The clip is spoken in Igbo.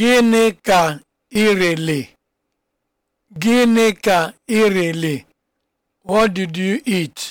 Gịnị ka irele? Gịnị ka irele? What did you eat?